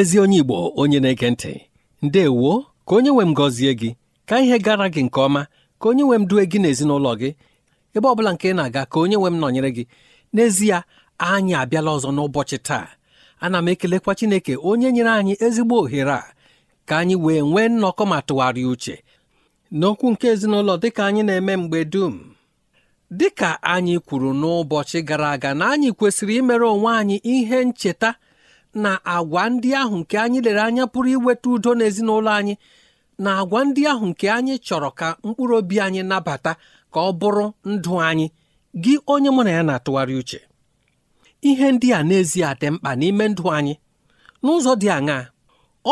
ezi onye Igbo onye na-ege ntị ndewo ka onye nwe m gọzie gị ka ihe gara gị nke ọma ka onye nwe m due gị n'ezinụlọ gị ebe ọ bụla nke ị na-aga ka onye nwe m nọnyere gị n'ezie anyị abịala ọzọ n'ụbọchị taa ana m ekelekwa Chineke onye nyere anyị ezigbo ohere a ka anyị wee nwee nnọkọ ma tụgharịa uche n'okwu nke ezinụlọ dịka anyị na-eme mgbe dum dịka anyị kwuru n'ụbọchị gara aga na anyị kwesịrị imere onwe anyị ihe ncheta na agwa ndị ahụ nke anyị lere anya pụrụ iweta udo n'ezinụlọ anyị na agwa ndị ahụ nke anyị chọrọ ka mkpụrụ obi anyị nabata ka ọ bụrụ ndụ anyị gị onye mụ na ya na-atụgharị uche ihe ndị a n'ezie dị mkpa n'ime ndụ anyị n'ụzọ dị aṅaa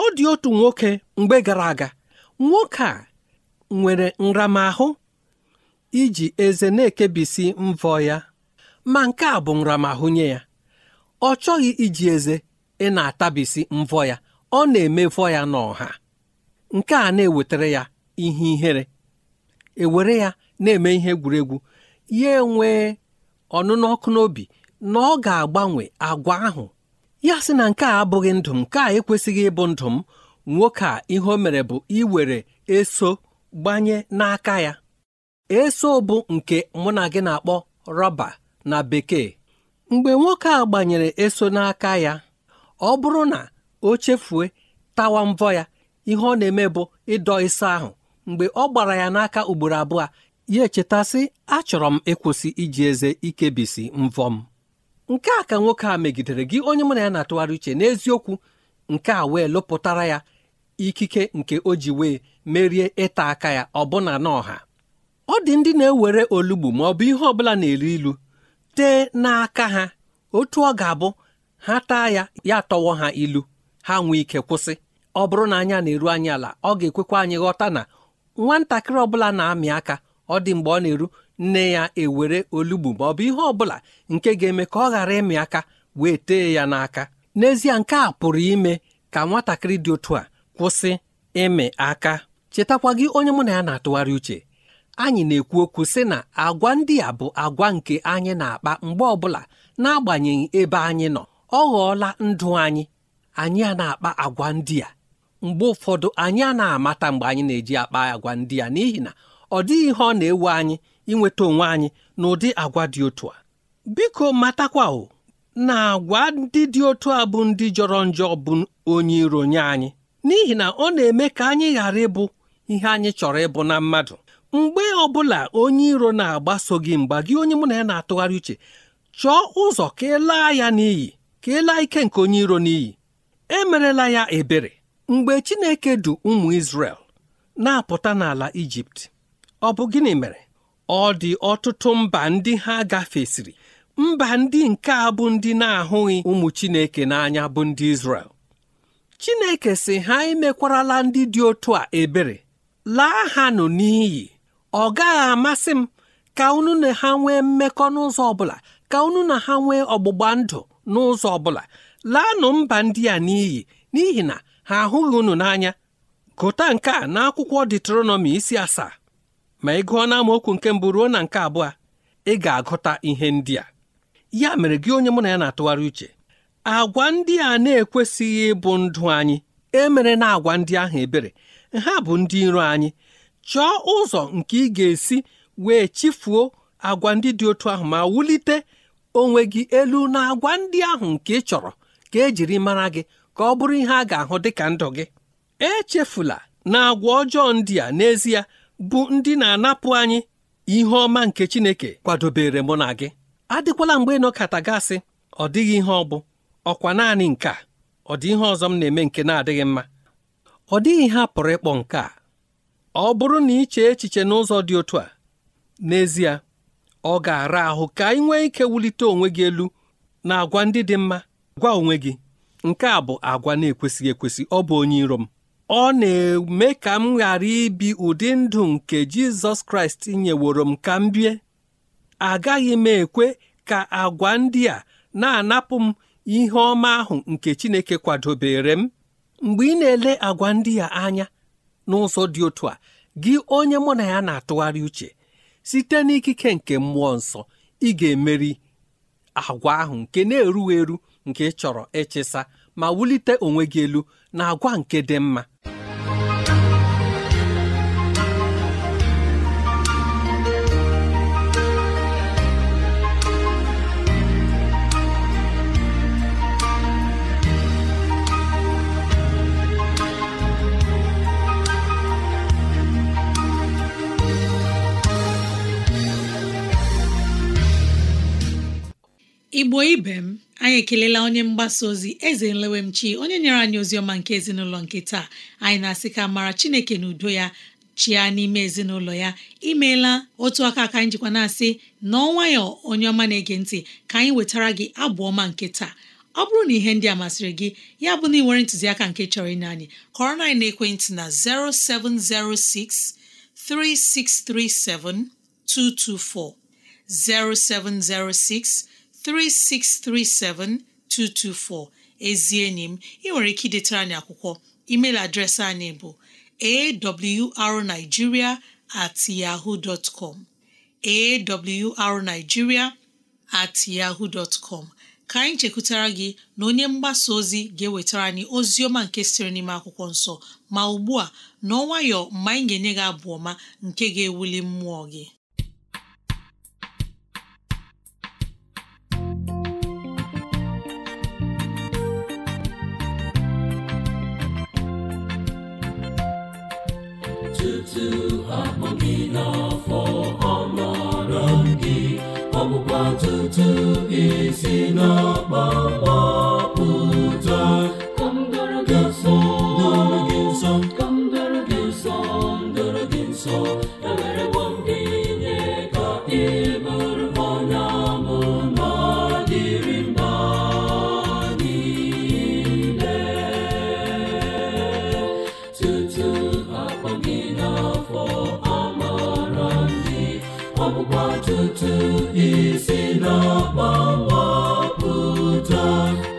ọ dị otu nwoke mgbe gara aga nwoke a nwere nramahụ iji eze na-ekebisi mvọ ya ma nke a bụ nramahụ nye ya ọ chọghị iji eze ị na-atabisi mvọ ya ọ na-emefọ ya n'ọha nke a na-ewetara ya ihe ihere ewere ya na-eme ihe egwuregwu ya enwee ọnụnụ ọkụ n'obi na ọ ga-agbanwe agwa ahụ ya sị na nke a abụghị ndụ m nke a ekwesịghị ịbụ ndụ m nwoke a ihe o mere bụ iwere eso gbanye n'aka ya eso bụ nke mụ na gị na-akpọ rọba na bekee mgbe nwoke a gbanyere eso n'aka ya ọ bụrụ na o chefue tawa mvọ ya ihe ọ na-eme bụ ịdọ ịsa ahụ mgbe ọ gbara ya n'aka ugboro abụọ ya echetasị achọrọ m ịkwụsị iji eze ikebisi mvọ m nke a ka nwoke a megidere gị onye mụ na ya na-atụgharị uche n'eziokwu nke a wee lụpụtara ya ikike nke o ji wee merie ịta aka ya ọbụna n'ọha ọ dị ndị na-ewere olugbu ma ọ bụ ihe ọbụla na eri ilu tee n'aka ha otu ọ ga-abụ ha taa ya ya tọwọ ha ilu ha nwee ike kwụsị ọ bụrụ na anya na-eru anyị ala ọ ga-ekwekwa anyị ghọta na nwatakịrị ọbụla na-amị aka ọ dị mgbe ọ na-eru nne ya ewere olugbu ma ọ bụ ihe ọbụla nke ga-eme ka ọ ghara ịmị aka wee tee ya n'aka n'ezie nke a pụrụ ime ka nwatakịrị dị otu a kwụsị ịmị aka chetakwa gị onye mụ na ya na-atụgharị uche anyị na-ekwu okwu sị na agwa ndị a bụ agwa nke anyị na-akpa mgbe ọbụla n'agbanyeghị ebe anyị nọ ọ ghọọla ndụ anyị anyị a na-akpa agwa ndị a mgbe ụfọdụ anyị a na-amata mgbe anyị na-eji akpa agwa ndị a n'ihi na ọ dịghị ihe ọ na-ewe anyị inweta onwe anyị na ụdị agwa dị otu a biko matakwa o na agwa ndị dị otu a bụ ndị jọrọ njọ bụ onye iro nye anyị n'ihi na ọ na-eme ka anyị ghara ịbụ ihe anyị chọrọ ịbụ na mmadụ mgbe ọ bụla onye iro na-agbaso gị mgba gị onye mụ na ya na-atụgharị uche chọọ ụzọ ka ị laa ya n'iyi ka ike nke onye iro n'iyi emerela ya ebere mgbe Chineke du ụmụ Izrel na-apụta n'ala Ijipt ọ bụ gịnị mere ọ dị ọtụtụ mba ndị ha gafesịrị mba ndị nke a bụ ndị na-ahụghị ụmụ Chineke n'anya bụ ndị Izrel Chineke si ha emekwarala ndị dị otu a ebere laa ha nụ n'iyi ọ gaghị amasị m ka unu na ha nwee mmekọ n'ụzọ ọ bụla ka unu na ha nwee ọgbụgba ndụ n'ụzọ ọ bụla laanụ mba ndị a n'iyi n'ihi na ha ahụghị unu n'anya gụta nke a n'akwụkwọ detronọmi isi asaa ma ị gụọ n'amaokwu nke mbụ ruo na nke abụọ ị ga-agụta ihe ndị a ya mere gị onye mụ na ya na-atụgharị uche agwa ndị a na-ekwesịghị ịbụ ndụ anyị emere na agwa ndị ahụ ebere ha bụ ndị iro anyị chọọ ụzọ nke ị ga-esi wee chifuo agwa ndị dị otu ahụ ma wulite onwe gị elu na agwa ndị ahụ nke ị chọrọ ka ejiri mara gị ka ọ bụrụ ihe a ga-ahụ dị ka ndụ gị echefula na agwa ọjọọ ndị a n'ezie bụ ndị na-anapụ anyị ihe ọma nke Chineke kwadobere mụ na gị adịkwala mgbe nọkata gasị ọ dịghị ihe ọ bụ ọkwa naanị nke a ọ dị ihe ọzọ m na-eme nke na-adịghị mma ọ dịghị ihe a pụrụ ịkpọ nke a ọ bụrụ na iche echiche n'ụzọ dị otu a n'ezie ọ ga-ara ahụ ka ị nwee ike wulite onwe gị elu na agwa ndị dị mma gwa onwe gị nke a bụ agwa na-ekwesịghị ekwesị ọ bụ onye iro m ọ na-eme ka m ghara ibi ụdị ndụ nke Jizọs Kraịst nyeworo m ka m bie agaghị m ekwe ka agwa ndị a na-anapụ m ihe ọma ahụ nke Chineke kwadobere m mgbe ị na-ele agwa ndị a anya n'ụzọ dị otu a gị onye mụ na ya na-atụgharị uche site n'ikike nke mmụọ nsọ ị ga-emeri agwa ahụ nke na-erughị eru nke ị chọrọ ịchịsa ma wulite onwe gị elu na agwa nke dị mma igbo ibe m anyị ekelela onye mgbasa ozi eze nlewemchi onye nyere anyị ozi ọma nke ezinụlọ nke taa anyị na-asị ka mara chineke na udo ya chia n'ime ezinụlọ ya imeela otu aka ka anyị jikwa na-asị na ọnwayọ onye ọma na-ege ntị ka anyị wetara gị abụ ọma nke taa ọ bụrụ na ihe ndị a masịrị gị ya bụ na ị nwere ntụziaka nke chọrọ ịnye anyị kọrọ na ekwentị na 0706 3637 224 0706 3637224 ezi enyi m ị nwere ike idetara anyị akwụkwọ email adreesị anyị bụ arigiria at yaho arigiria at yahoo dot ka anyị chekwutara gị na onye mgbasa ozi ga-ewetara anyị ozi ọma nke siri n'ime akwụkwọ nsọ ma ugbu a n'ọnwayọ mgbe anyị ga-enye gị abụ ọma nke ga-ewuli mmụọ gị esi n'ọkpọkpọ isi n'ọkpọ mkpọpụta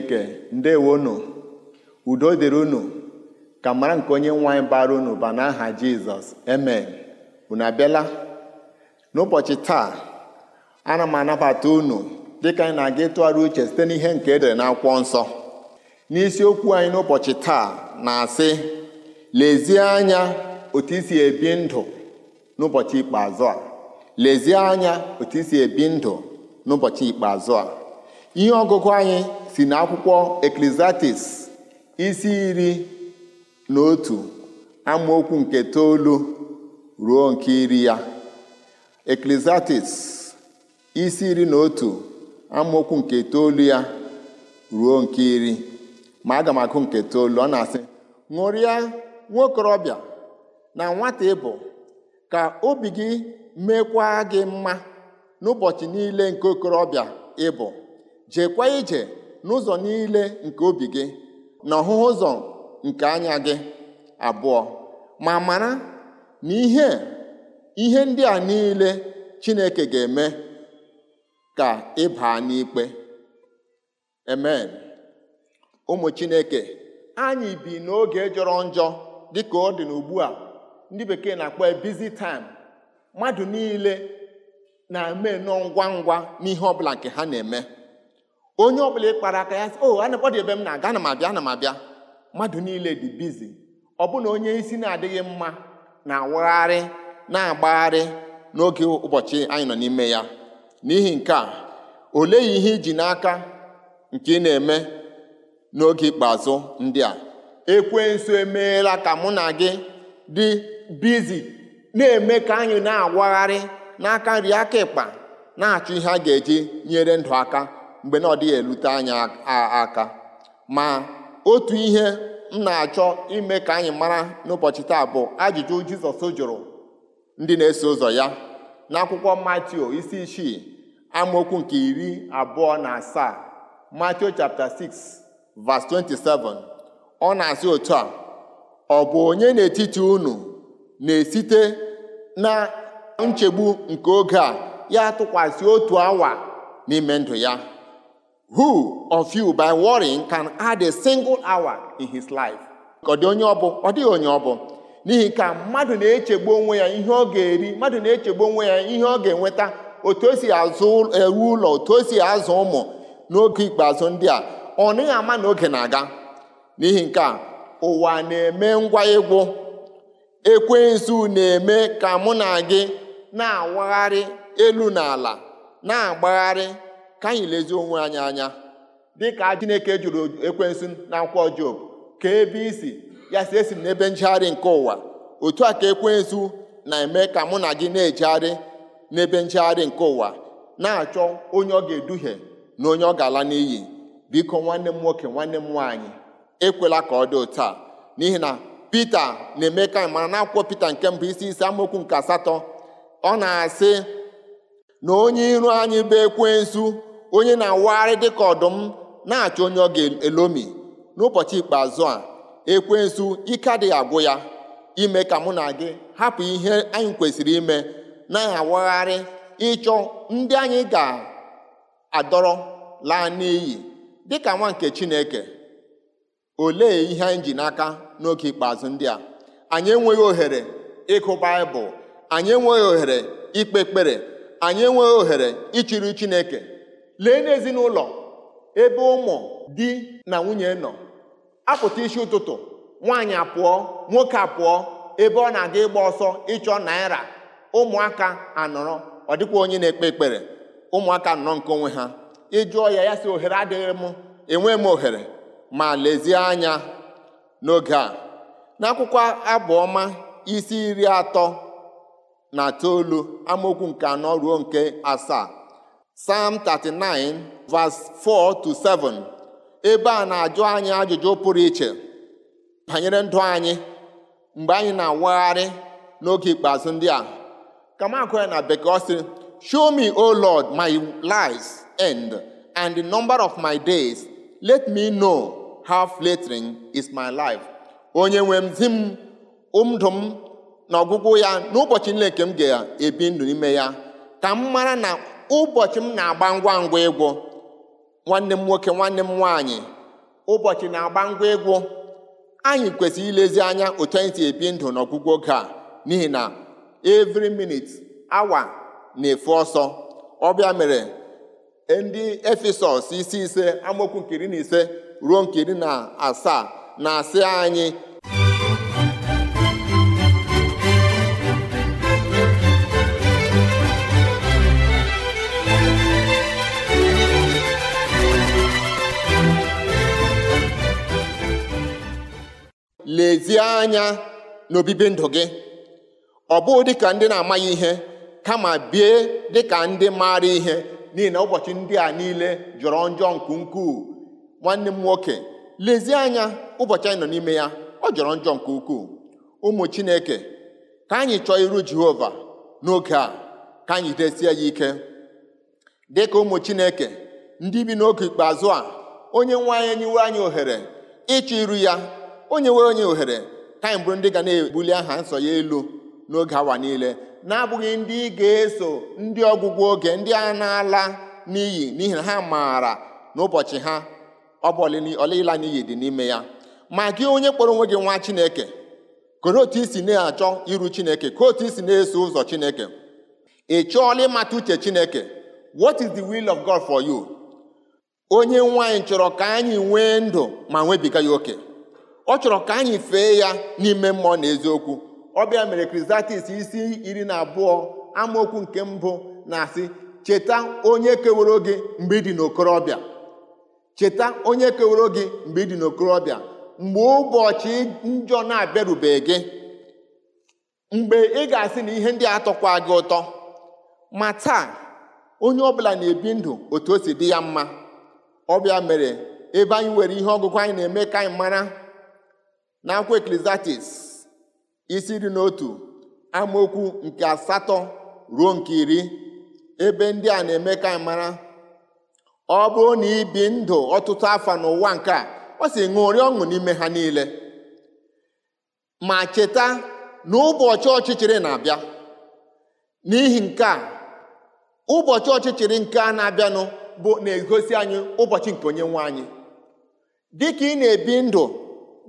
chineke ndewonụ udo dịrị unu ka mara nke onye nwe anyị bara unu ba n'aha jizọs emen unu abịala n'ụbọchị taa ana m anabata unu dịka anyị na-aga ịtụgharị uche site n'ihe nke edere n'akwụkwọ nsọ n'isiokwu anyị n'ụbọchị taa na-asị lezie anya otu isi ebi ndụ n'ụbọchị ikpeazụ a lezie anya otu isi ebi ndụ n'ụbọchị ikpeazụ a ihe ọgụgụ anyị si n'akwụkwọ akwụkwọ eklesiastis isi iri na otu amaokwu nke toolu ruo nke iri ya isi iri na otu amaokwu nke toolu ya ruo nke iri ma aga m akụ nke toolu ọ na-asị ṅụrịa nwaokorobịa na nwata ịbụ ka obi gị mekwaa gị mma n'ụbọchị niile nke okorobịa ịbụ jeekwa ije n'ụzọ niile nke obi gị na ọhụhụ ụzọ nke anya gị abụọ ma mara na ihe ihe ndị a niile Chineke ga-eme ka ị baa n'ikpe amen ụmụ Chineke anyị bi n'oge jọrọ njọ dịka ọ dị n'ugbu a ndị bekee na-akpọ bizi taim mmadụ niile na-eme nọ ngwa ngwa n'ihe ọbụla nke ha na-eme onye ọbụla ịkpara aka ya sị o oh, anapọdụ ebe m na-aga ana m abịa ana m abịa mmadụ niile dị bizi ọbụna onye isi na-adịghị mma na-awagharị na-agbagharị n'oge ụbọchị anyị nọ n'ime ya n'ihi nke a olee ihe iji n'aka nke ị na-eme n'oge ikpeazụ ndị a ekwensu emeela ka mụ na gị dị bizi na-eme ka anyị na-awagharị n'aka nri aka ịkpa na-achọ ihe a ga-eji nyere ndụ aka mgbe na ọ dịghị elute anyị aka ma otu ihe m na-achọ ime ka anyị mara n'ụbọchị taa bụ ajụjụ Jizọs jụrụ ndị na-eso ụzọ ya n'akwụkwọ Matio isi isii amaokwu nke iri abụọ na asaa Matio chapter 6 verse 27 ọ na-asị otu a ọ bụ onye n'etiti unu na-esite na nchegbu nke oge a ya tụkwasị otu awa n'ime ndụ ya who of you by worrying can add a single hour in his life ọ dị onye ọbụ ọ dịghị onye ọbụ n'ihi ka mmadụ na-echegbu onwe ya ihe ọ ga-eri mmadụ na-echegbu onwe ya ihe ọ ga-enweta otu o si azụ ewu ụlọ otu o si azụ ụmụ n'oge ikpeazụ ndị a ọ naghị ama na oge na-aga n'ihi nke a ụwa na-eme ngwa egwu ekwensu na-eme ka mụ na gị na-awagharị elu na ala na-agbagharị ka anyị lezie onwe anyị anya dịka Chineke jụrụ ekwensu na akwụkwọ Job ka ebe isi ya si esi n'ebe njegharị nke ụwa otu a ka ekwensu na-eme ka mụ na gị na-ejegharị n'ebe njegharị nke ụwa na-achọ onye ọ ga-eduhie na onye ọ ga-ala n'iyi biko nwanne m nwoke nwanne m nwaanyị ekwela ka ọ dị taa n'ihi na Pita na-eme ka mara na akwụkwọ Pita nke mbụ isi isi amaokwu nke asatọ ọ na-asị na onye iru anyị bụ ekwensu onye na-awagharị dịka ọdụm na-achọ onye ọ ga-elomi n'ụbọchị ikpeazụ a Ekwe ekwensu ike adịghị agwụ ya ime ka mụ na gị hapụ ihe anyị kwesịrị ime na-awagharị ịchọ ndị anyị ga-adọrọ laa n'iyi dịka nwa nke Chineke olee ihe anyị ji n'aka n'oge ikpeazụ ndị a anyị enweghị ohere ịkụ Baịbụl anyị enweghị ohere ikpe ekpere anyị enweghị ohere ịchịrị Chineke lee n'ezinụlọ ebe ụmụ di na nwunye nọ apụta isi ụtụtụ nwaanyị apụọ nwoke apụọ ebe ọ na-aga ịgba ọsọ ịchọ naira ụmụaka anọrọ ọ dịkwa onye na-ekpe ekpere ụmụaka nọ nke onwe ha ịjụọ ya ya si ohere adịghị m enwe m ohere ma lezie anya n'oge a n'akwụkwọ abụọma isi iri atọ na toolu amaokwu nke anọ ruo nke asaa Psalm 39 verse 4 to 7 ebe a na-ajụ anyị ajụjụ pụrụ iche banyere ndụ anyị mgbe anyị na-awagharị n'oge ikpeazụ ndị a kamakwe na bekee sịrị, show me o lord my life's end and the number of my days let me know how flattering is my life onye nwe m zi m ndụ na ọgwụgwụ ya n'ụbọchị ga-ebi ya ka m mara ụbọchị m na-agba ngwa ngwa egwu nwanne m nwoke nwanne m nwaanyị ụbọchị na-agba ngwa egwu anyị kwesịrị ilezi anya otu anyị si ebi ndụ n'ọgwụgwụ oge n'ihi na evri minit awa na-efu ọsọ ọbịa mere ndị efesọs isi ise amaokwu Nkiri na ise ruo nkiri na asaa na-asị anyị lezie anya n'obibi ndụ gị ọ bụghị dịka ndị na-amaghị ihe kama bie dịka ndị maara ihe n'ihi na ụbọchị ndị a niile jọrọ njọ nke ukwuu nwanne m nwoke lezie anya ụbọchị anyị nọ n'ime ya ọ jọrọ njọ nke ukwuu ụmụ chineke ka anyị chọọ iru jehova n'oge a ka anyị desie ya ike dịka ụmụ chineke ndị bi n'oge ikpeazụ a onye nwe anyị nyiwe anyị ohere ịchọ iru ya o nyewere onye ohere ka anyị bụrụ ndị ga na-ebuli aha nsọ ya elu n'oge awa niile na-abụghị ndị ga-eso ndị ọgwụgwụ oge ndị a na-ala n'iyi n'ihi na ha maara n'ụbọchị ha ọ bụ n'iyi dị n'ime ya ma gị onye kpọrọ onwe gị nwa Chineke koro otu isi na-achọ iru Chineke ka otu isi na-eso ụzọ Chineke ị chọọla ịmata uche Chineke what is the will of God for you onye nwaanyị chọrọ ka anyị nwee ndụ ma nwebiga ya oke ọ chọrọ ka anyị fee ya n'ime mmụọ na eziokwu ọbịa mere krizatis isi iri na abụọ amaokwu nke mbụ na-asị cheta onye keworo gị mgbe ị dị n'okorobịa cheta onye keworo gị mgbe ị dị n'okorobịa mgbe ụbọchị njọ na abịarubeghi gị mgbe ị ga-asị na ihe ndị atọkwa gị ụtọ ma taa onye ọbụla na-ebi ndụ otu o si dị ya mma ọbịa mere ebe anyị nwere ihe ọgụgụ anyị na-eme ka anyị mara na akwụkwọ Ecclesiastes isi iri n'otu nke asatọ ruo nke iri ebe ndị a na-eme ka mara ọ bụrụ na ibi ndụ ọtụtụ afọ n'ụwa nke a ọ si ṅụrị ọṅụ n'ime ha niile ma cheta na ụbọchị ọchịchịrị na-abịa n'ihi nke a ụbọchị ọchịchịrị nke a na-abịanụ bụ na-egosi anyị ụbọchị nke onye nwe anyị dịka ị na-ebi ndụ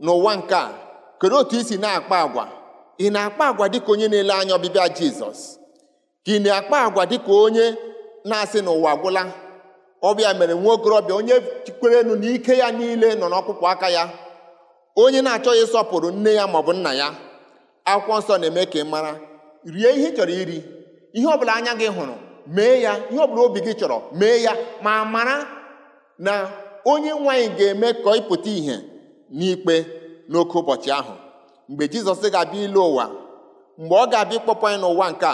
n'ụwa nke a kedu otu isi na-akpa agwa ị na-akpa agwa dịka onye na-ele anya ọbịbịa jizọs ka ị na-akpa agwa dịka onye na-asị n'ụwa gwụla ọbịa mere nwa okorobịa onye chikwere enu na ike ya niile nọ n'ọkpụkpụ aka ya onye na-achọghị ịsọpụrụ nne ya maọbụ nna ya akwụkwọ nsọ na-eme ka ị mara rie ihe ị chọrọ iri ihe ọbụla anya gị hụrụ mee ya ihe ọbụla obi gị chọrọ mee ya ma mara na onye nwaanyị ga-eme ka ị pụta ìhè n'ikpe n'oke ụbọchị ahụ mgbe jizọs ga-abịa ilu ụwa mgbe ọ ga-abịa ịkpọpụ anyị n'ụwa nke a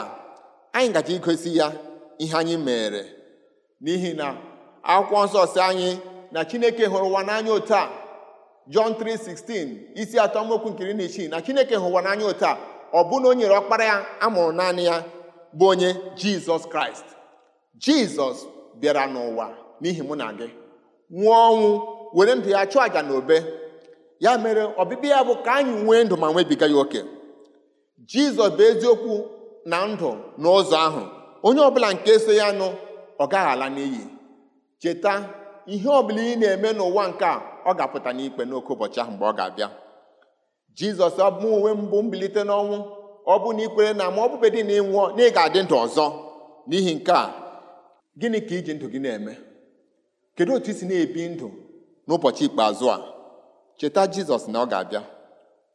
anyị gaji igosi ya ihe anyị mere n'ihi na akwụkwọ nsọ si anyị na chineke hụrụ ụwa n'anya otu a jọn 3:16 isi atọ mokwu nkiri na isii na chineke hụrụ ụwa n'anya otu a ọ bụ na o nyere ọkpara ya amụrụ naanị ya bụ onye jizọs kraịst jizọs bịara n'ụwa n'ihi mụ na gị nwụọ ọnwụ were ndụ ya chụọ àjà n'obe ya mere ọbịbịa ya bụ ka anyị nwee ndụ ma nwebiga ya oke jizọs bụ eziokwu na ndụ n'ụzọ ahụ onye ọbụla nke so ya nụ ọ gaghị ala n'iyi cheta ihe ọbụla ị na-eme n'ụwa nke a ọ ga-apụta n'ikpe n'oke ụbọchị ahụ mgbe ọ ga-abịa jizọs bụ uwe mbụ mbilite n'ọnwụ ọ bụ na ikwere na ma ọ bụbedị na ịnwụọ na ị ga-adị ndụ ọzọ n'ihi nke a gịnị ka iji ndụ gị na-eme kedu otu isi na-ebi ndụ n'ụbọchị ikpeazụ a cheta jizọs na ọ ga-abịa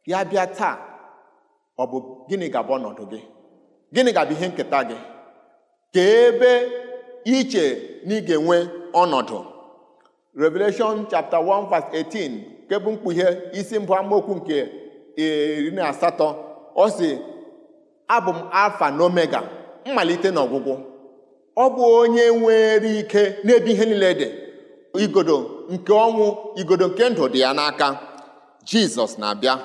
ya bịa taa ọ bụ gịnị ga-abụ ọnọdụ gị gịnị ga-abụ ihe nketa gị ka ebe iche na ị ga-enwe ọnọdụ Revelation chapter 1 verse 18 nke bụ mkpughe isi mbụ amaokwu nke iri na asatọ ọ si abụ m alfa na omega mmalite na ọgwụgwụ ọ bụ onye nwere ike n'ebe ihe niile dị igodo nke ọnwụ igodo nke ndụ dị ya n'aka jizọs na-abịa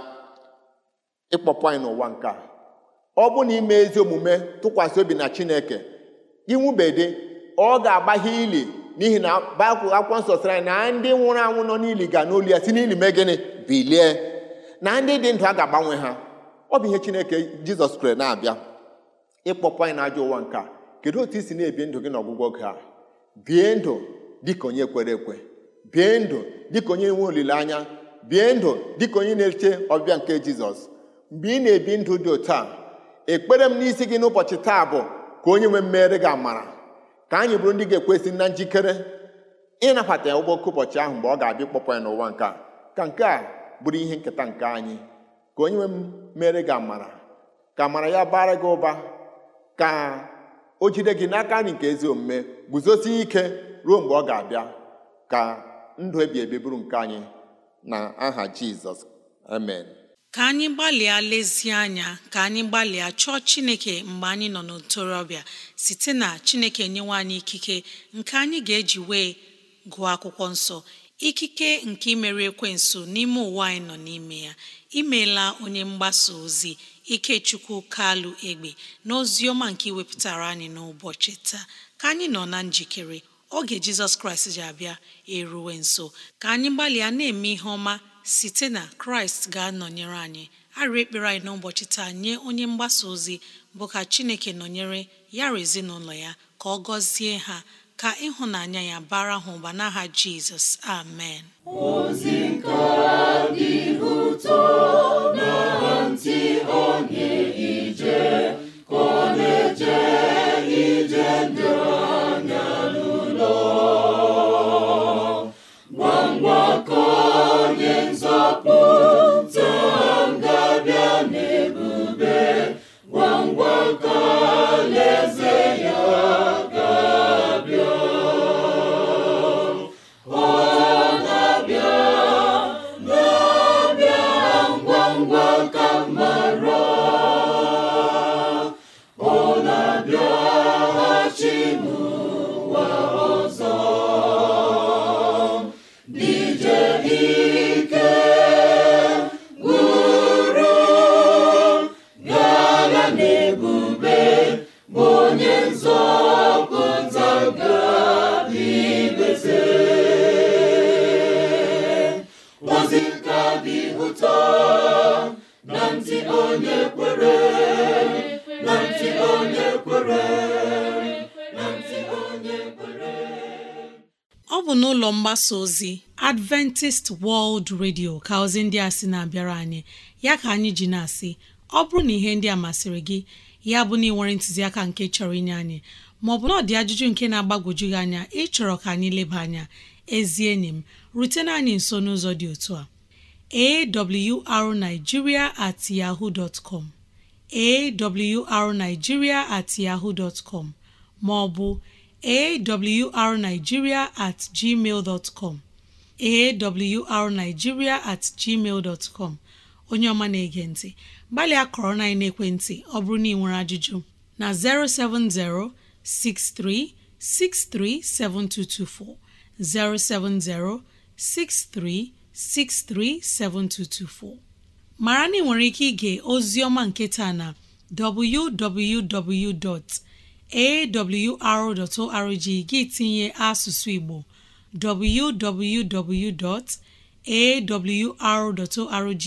ịkpọpụ anyị n'ụwa nke a ọ bụ na ime ezi omume tụkwasị obi na chineke ịnwụbedị ọ ga-agbaghe ili n'ihi na bakwụ akwụkwọ nsọ sịrị na ndị nwụrụ anwụ nọ n'ili ga n'olu ya si n'ili mee gịnị bilie na ndị dị ndụ a ga-agbanwe ha ọ bụ ihe chineke jizọs kwere na-abịa ịkpọpụ anyị n'ajọ ụwa nke a kedu otu i si na-ebi ndụ gị n'ọgwụgwọ gị a bie ndụ dịka onye kwere ekwe bie ndụ dịka onye nwe olileanya bie ndụ dịka onye na-eche ọbịa nke jizọs mgbe ị na-ebi ndụ dị otu a ekpere m n'isi gị n'ụbọchị taa bụ ka onye nwe mmere gị amara ka anyị bụrụ ndị ga-ekwesị na njikere ịnabata ya ụgbọke ụbọchị ahụ mgbe ọ ga-abịa ịkpọpụ ya n'ụwa nke a ka nke a bụrụ ihe nketa nke anyị ka onye nwe m mere gị amara ka amara ya bara gị ụba ka o jide gị n'aka nri nke ezi omume guzosie ike ruo mgbe ọ ga-abịa ka ndụ e ebi ebi nke anyị na aha jizọs amen ka anyị gbalịa lezie anya ka anyị gbalịa chọọ chineke mgbe anyị nọ n'ntorobịa site na chineke nyewe anyị ikike nke anyị ga-eji wee gụọ akwụkwọ nsọ ikike nke imere ekwensu n'ime ụwa anyị nọ n'ime ya imeela onye mgbasa ozi ikechukwu kalụ egbe na ozi ọma nke iwepụtara anyị n'ụbọchị taa ka anyị nọ na njikere oge jizọs kraịst ji abịa eruwe nso ka anyị gbalịa na-eme ihe ọma site na kraịst ga-anọnyere anyị arị ekpere anyị n'ụbọchị taa nye onye mgbasa ozi bụ ka chineke nọnyere yara ezinụlọ ya ka ọ gọzie ha ka ịhụnanya ya bara ha ụba n'aha jizọs amen ozi nke dị ụtọ onye ozi ka dị na ntị onye kwere na ntị onye kwere na onye kwere ọ bụ n'ụlọ mgbasa ozi Adventist World Radio ka ozi ndị a sị na-abịara anyị ya ka anyị ji na-asị ọ bụrụ na ihe ndị a masịrị gị ya bụ na ị nwere ntụziaka nke chọrọ inye anyị maọbụ na ọ dị ajụjụ nke na-agbagwoju gị anya ịchọrọ ka anyị leba anya ezi enyi m rutena anyị nso n'ụzọ dị otu a awrnigeria at yahoo dot com awrnigeria at yahoo dot maọbụ awrnigeria at gmail dot com at gmail dot onye ọma na-ege ntị gbalịa kọrọ na ekwentị ọ bụrụ na ị nwere ajụjụ na 07063637224 07063637224 mara na ị nwere ike ige ozi ọma nke taa na www.awr.org gị tinye asụsụ Igbo www.awr.org